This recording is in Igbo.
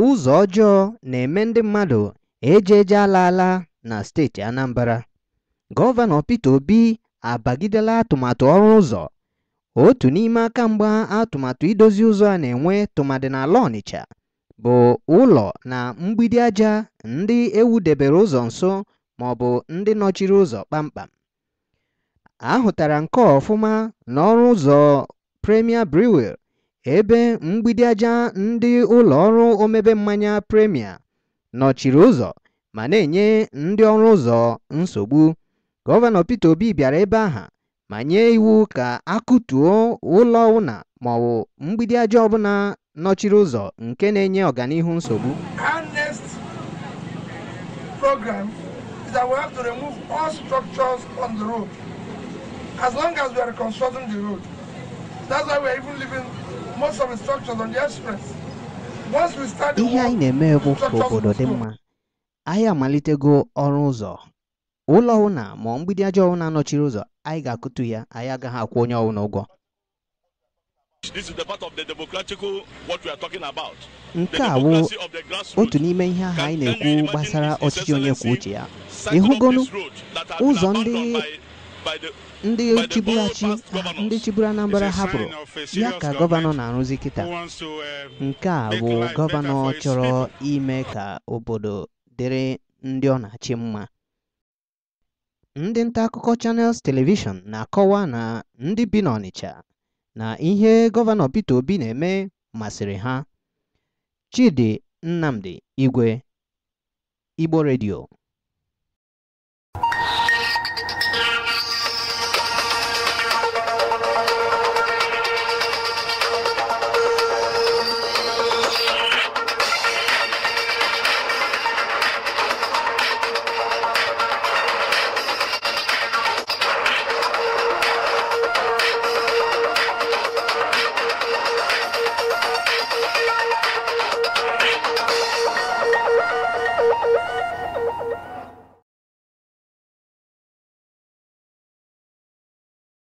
Ụzọ ọjọọ na-eme ndị mmadụ eje ala alaala na steeti Anambra. Gọvanọ Peter Obi abagidela atụmatụ ọrụ ụzọ. Otu n'ime aka mgbe atụmatụ idozi ụzọ a na-enwe tụmadị n'ala Ọnịcha bụ ụlọ na mgbidi aja ndị ewudebere ụzọ nso bụ ndị nọchiri ụzọ kpamkpam. A nke ọfụma n'ọrụ ụzọ Premier Brewery ebe mgbidi aja ndị ụlọ ọrụ omebe mmanya Premia nọchiri ụzọ ma na-enye ndị ọrụ ụzọ nsogbu. Gọvanọ Peter Obi bịara ebe aha ma nye iwu ka a kụtuo ụlọ ụna ma ọ mgbidi aja ọbụla nọchiri ụzọ nke na-enye ọganihu nsogbu. That's why we even living. ihe anyị na-eme bụ ka obodo dị mma anyị amalitego ọrụ ụzọ ụlọ ụna ma mgbidi aja na anọchiri ụzọ anyị ga-akụtu ya anyị agaghị akwụ onye ọwụna ụgwọ nke a wụ otu n'ime ihe ahụ anyị na-ekwu gbasara ọchịchị onye kwuo uche ya ịhụgonu ụzọ ndị ndị chibụlachi ndị chibụrụ Anambra hapụrụ ya ka gọvanọ na-arụzi kịta eh, nke a bụ gọvanọ chọrọ ime ka obodo dịrị ndị ọ na-achị mma ndị nta akụkọ chanels telivishọn na-akọwa na ndị bi n'Ọnịcha na ihe gọvanọ Peter Obi na-eme masịrị ha Chidi Nnamdi Igwe Igbo Redio.